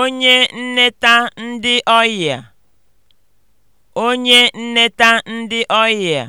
onye nneta ndị ọyịa